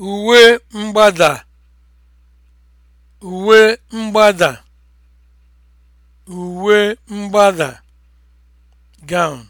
uwe mgbada uwe mgbada uwe mgbada gown